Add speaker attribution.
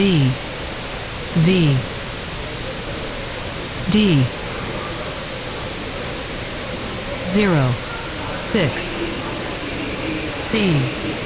Speaker 1: B V D zero six
Speaker 2: C